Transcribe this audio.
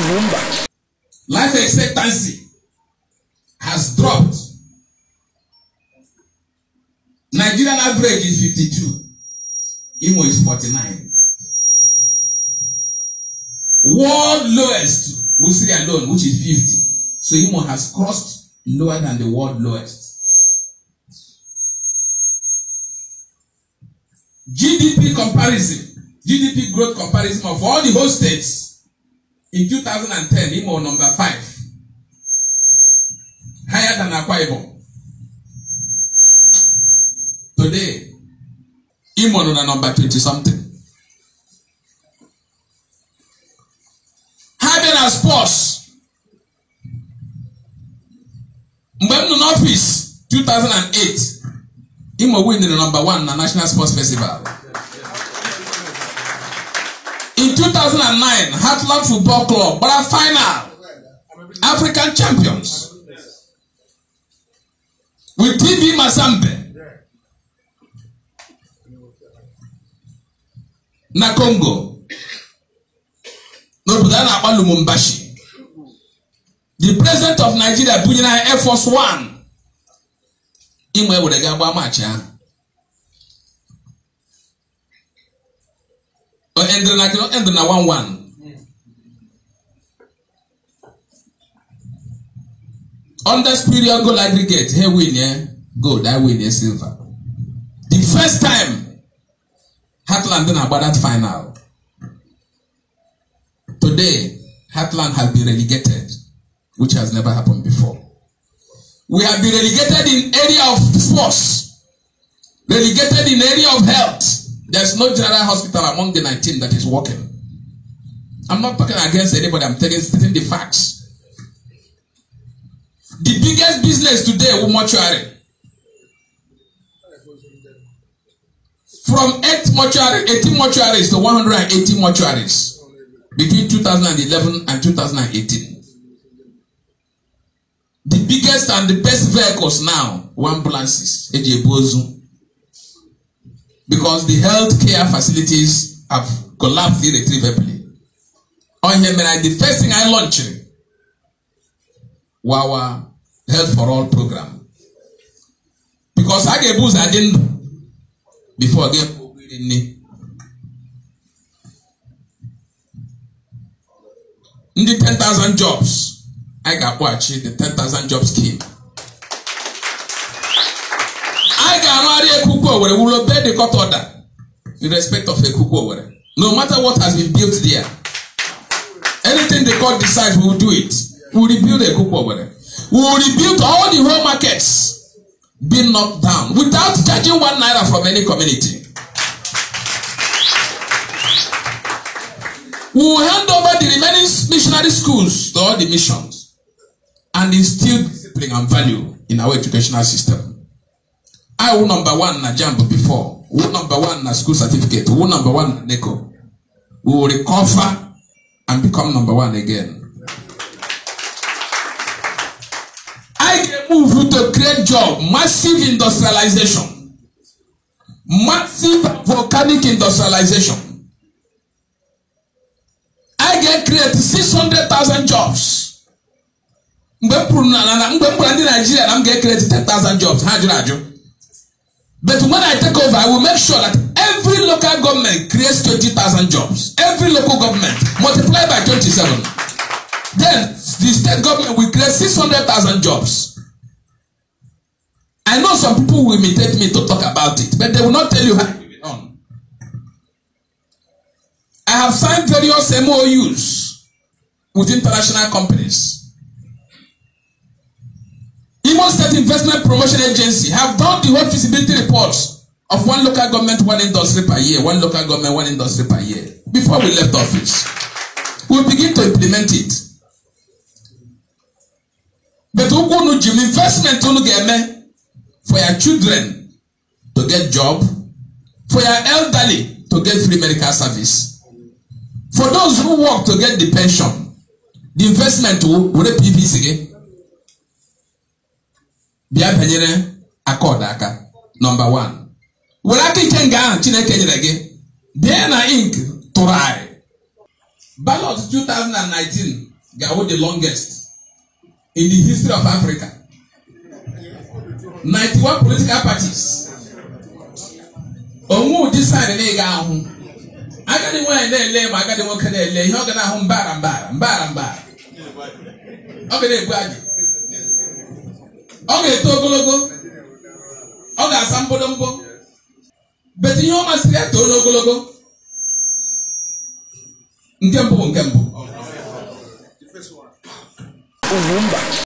kuwumba. Life expectancy has dropped. Nigerian average is fifty-two. Imo is forty-nine. World lowest we see alone which is fifty. So Imo has crossed lower than the world lowest. GDP comparison, GDP growth comparison of all the whole states in 2010 him on number five higher than Akwa today him on number 20 something having a sports mgbe in nọ n'ọfịs 2008 imo win na number one in the national sports festival In 2009, Heartland Football Club were final African champions with TB Mazembe na Congo n'obodo a na-akpọ Lumumbashi. The president of Nigeria bunyere Air Force One. Imo ewere ga-agba maachị ahụ. ɛndiri na kino ɛndiri na one one. Under spiritual gold aggregate, here win yeah, gold, I win yeah, silver. The first time, Heartland didn't about that final. Today, Heartland has been relegated, which has never happened before. We have been relegated in area of sports, relegated in area of health, There's no general hospital among the 19 that is working. I'm not talking against anybody, I'm telling stating the facts. The biggest business today is mortuary. From 8 mortuary, 18 mortuaries to 180 mortuaries between 2011 and 2018. The biggest and the best vehicles now were ambulances. Eji Ebozu because the health care facilities have collapsed irretrievably ọhịa mere the first thing I launched our health for all program because I ga-ebu I adị before. before ga ebu obere nne ndị 10,000 jobs anyị ga-akpọghachi the ten thousand jobs scheme arụgharị ekuku owere wụrụ bed court order in respect of ekuku owere no matter what has been built there anything the court decides we will do it we will rebuild ekuku owere we will rebuild all the whole markets being knocked down without charging one naira from any community. We will hand over the remaining missionary schools to all the missions and instill discipline and value in our educational system. I wo number one na jump before Who number one na school certificate Who number one na NECO we will recover and become number one again. I dey move you to create job massive industrialization massive volcanic industrialization I get create six hundred thousand jobs. mgbe m pụrụ na mgbe m gwara ndị naijiria na m ga-ekereti 10,000 jobs ha jụrụ ajụ But when I take over, I will make sure that every local government creates twenty thousand jobs. Every local government multiplied by twenty-seven, Then the state government will create six hundred thousand jobs. I know some people will imitate me to talk about it, but they will not tell you how it on. I have signed various MOUs with international companies. Imo State Investment Promotion Agency have done the whole feasibility reports of one local government, one industry per year, one local government, one industry per year before we left office. We begin to implement it. But Ukunu Jim investment unu ga-eme for your children to get job, for your elderly to get free medical service, for those who work to get the pension, the investment will were PVC gị. bịa banyere akọdụ aka nọmba 1 were aka ike nga ahụ chineke nyere gị dna na ink tụrụ anyị ballot 2019 ga-awụ the longest in the history of Africa 91 political parties onwe ụdị saịdị na ahụ agadi nwaanyị na-ele ma agadi nwoke na-ele ihe ọ ga na-ahụ mbara mbara mbara mbara ọ ga na-ebu ọ ga-eto ogologo ọ ga-asa mkpụdụmkpụ beti ihe ọ masịrị ya too n'ogologo nke mbụ bụ nke mbụ